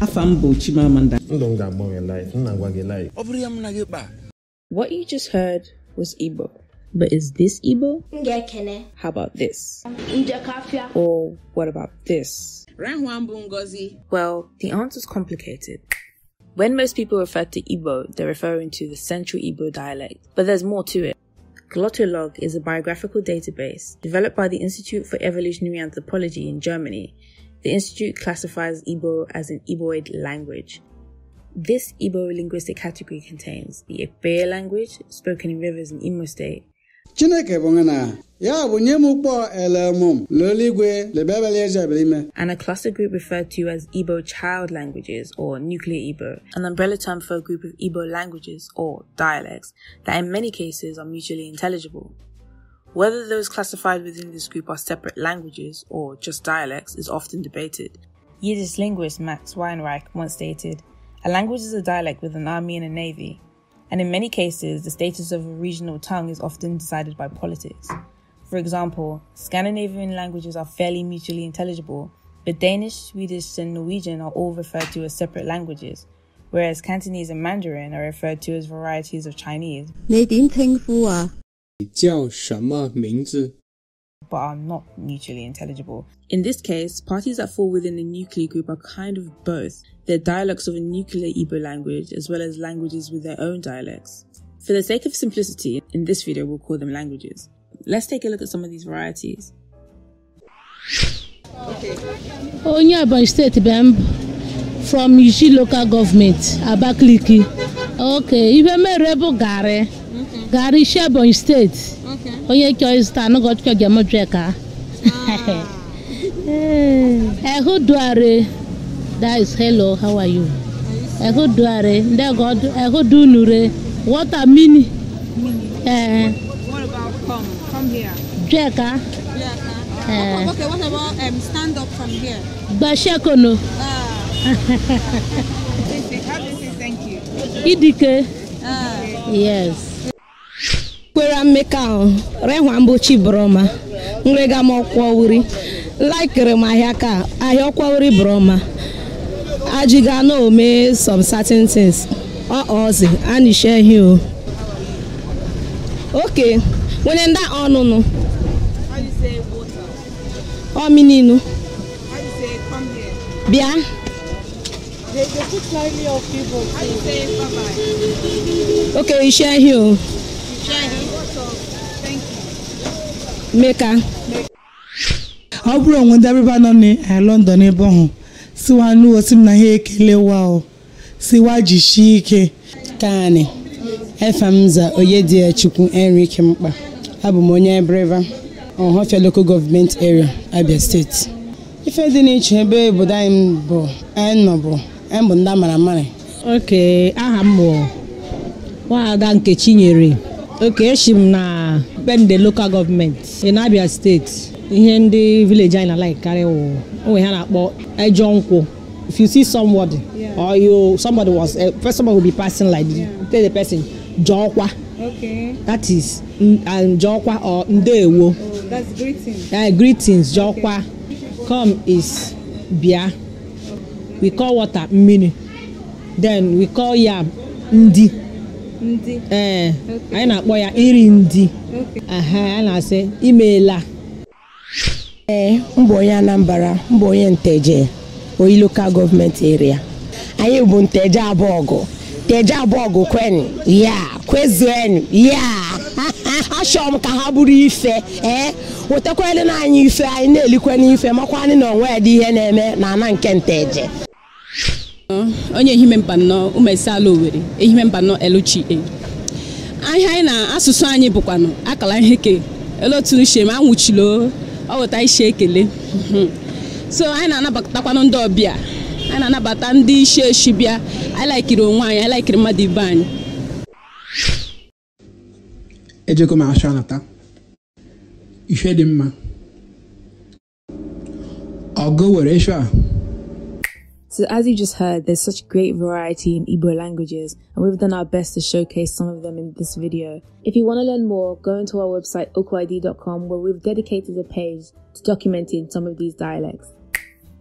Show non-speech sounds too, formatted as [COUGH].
What you just heard was Igbo. But is this Igbo? How about this? Or what about this? Well, the answer's complicated. When most people refer to Igbo, they're referring to the Central Igbo dialect, but there's more to it. Glottolog is a biographical database developed by the Institute for Evolutionary Anthropology in Germany the Institute classifies Igbo as an Igboid language. This Igbo linguistic category contains the Ebe language, spoken in rivers in Imo State. Chineke bongana, ya bunye elemum, loligwe, And a cluster group referred to as Igbo child languages or nuclear Igbo, an umbrella term for a group of Igbo languages or dialects that in many cases are mutually intelligible. Whether those classified within this group are separate languages or just dialects is often debated. Yiddish linguist Max Weinreich once stated A language is a dialect with an army and a navy, and in many cases, the status of a regional tongue is often decided by politics. For example, Scandinavian languages are fairly mutually intelligible, but Danish, Swedish, and Norwegian are all referred to as separate languages, whereas Cantonese and Mandarin are referred to as varieties of Chinese. But are not mutually intelligible. In this case, parties that fall within a nuclear group are kind of both. They're dialects of a nuclear Ebo language as well as languages with their own dialects. For the sake of simplicity, in this video we'll call them languages. Let's take a look at some of these varieties. Okay. Onyeabon State Bemb from Yishi local government, Abakliki. Okay, Ibemere bụ gare. Garị si Ebonyi steeti onye chọọ ịzụta anụ gọchịkọ ga-emejọ ka ehu duare that is hello how are you ehu duare ndị ehu dunure mini eh what about here what about stand up from here gbashekono ah [LAUGHS] idike ah yes kwera mmeka ahụ rehwa mbochi broma nrega m ọkwọwuri laikiri m ahịa ka ahịa ọkwọwuri broma ajiga na ome some certain things ọọzi anishehi o oke nwere ndị ọnụnụ ọmininu bịa okay ishehi o meka ọ bụrụ onwe ndị abịba nọ na eh, London ebe ọhụụ, siwa nụwo si m na ha ekelewa o siwa jishi ike kani efemza Oyedichukwu Enrique Mkpa abụ m onye Ebreva Ọhafịa Local Gọọmenti Area Abia Steeti. ife dị n'iche ebe obodo anyị bụ anyị bụ anyị bụ ndị amara amara oke aha mbụ. bụ nwaada Nkechinyere okay Eshim na bend the local government in Abia State ihe ndị village anyị na like karị wụ onwe ha na-akpọ ejọ nkwụ if you see somebody yeah. or you somebody was uh, first somebody will be passing like yeah. tell the person jọkwa okay. that is and jọkwa or ndewo oh, that's greetings greetings jọkwa okay. come is bịa we call water mmiri then we call yam ndị ee eh, anyị na-akpọ ya iri ndị a na-asị imeela ee eh, mbụ onye Anambra mbụ onye Nteje oyi lokal gọọmenti eria anyị bụ Nteje Abụọgụ. Nteje Abụọgụ, kwenu ya kwezuenu ya [LAUGHS] achọrọ m ka ha bụrụ ife ee eh? wetakwanụ na anyị ife anyị na-elikwe n'ife makwanụ na onwe ya dị ihe na-eme na ana nke Nteje onye ehime mba nọ umesala Owerri ehime mba nọ LGA ahịa anyị na asụsụ anyị bụkwanụ akala ihe ke ele otu uche ma ọ wụta isi ekele so anyị na-anabatakwanụ ndị ọbịa anyị na-anabata ndị isi eshi bịa anyị laikiri onwe anyị anyị laikiri mmadụ ibe anyị ejego m achọ ife dị mma ọgụ were a So as you just heard, there's such great variety in Igbo languages and we've done our best to showcase some of them in this video. If you want to learn more, go into our website okwid.com where we've dedicated a page to documenting some of these dialects.